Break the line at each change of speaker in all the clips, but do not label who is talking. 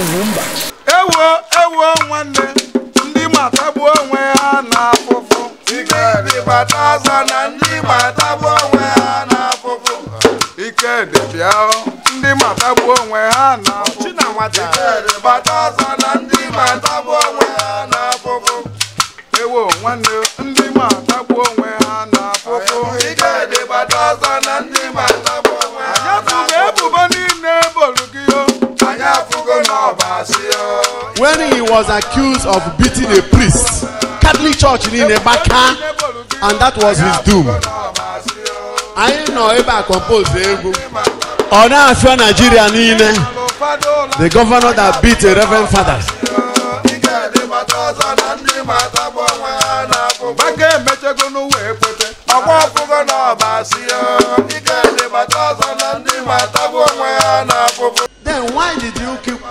mba
ewo ewo nwanne ndị matagbuo onwe ha na afụfụ dị bata aza na ndị matagbuo onwe ha na afụfụ ikedị bịa ndị matagbuo onwe ha na dị bata aza na ndị matagbuo onwe ha na afụfụ ewo nwanne ndị
matagbuo onwe ha na
When
he was accused of beating a priest, Catholic Church in Ebaka, and that was his doom. Anyị nọ ebe a compose egwu. Ona Afia afịa Nigeria niile. The governor that beat a reverend father.
Gbagee emechego n'ụwa ekwete, ọkwa ọkụgo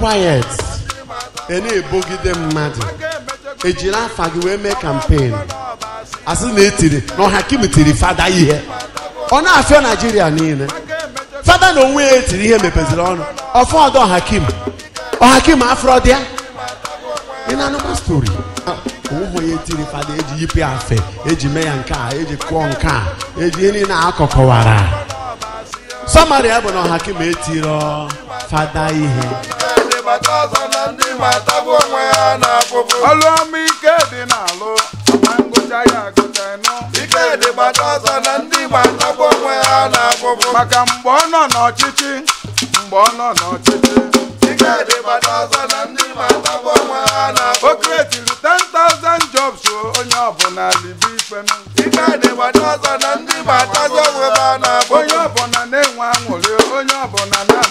quiet ị na-ebogide mmadụ ejiri afa gị wee mee kampen asị na etiri na ọhakim tiri fada ihe ọ na-afịa naijiria niile fada na onwe ya etiri ihe mepeziri ọnụ ọfọdụ ọhakim ọhakim afrọ dị ya ị na-anụkwa stori ụmụ ah, ya etiri fada eji yipe afe eji mee ya nke a eji kụọ nke a eji ihe niile akọkọwara sọmarị bụ na ọhakim etiro fada ihe mata
ọzọ na ndị matagbu onwe ha na afụfụ ọlụ ọma ike dị n'alụ ma ngụcha ya agụta ịnụ ike dị mata na ndị matagbu onwe ha na afụfụ maka mgbe ọ nọ n'ọchịchị mgbe ọ nọ n'ọchịchị ike dị mata na ndị matagbu onwe ha na afụfụ o kretiri 10,000 jobs onye ọbụla libe ifenu ike dị mata na ndị matagbu onwe ha na afụfụ onye ọbụla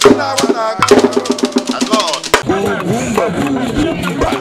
Chila Wanaga.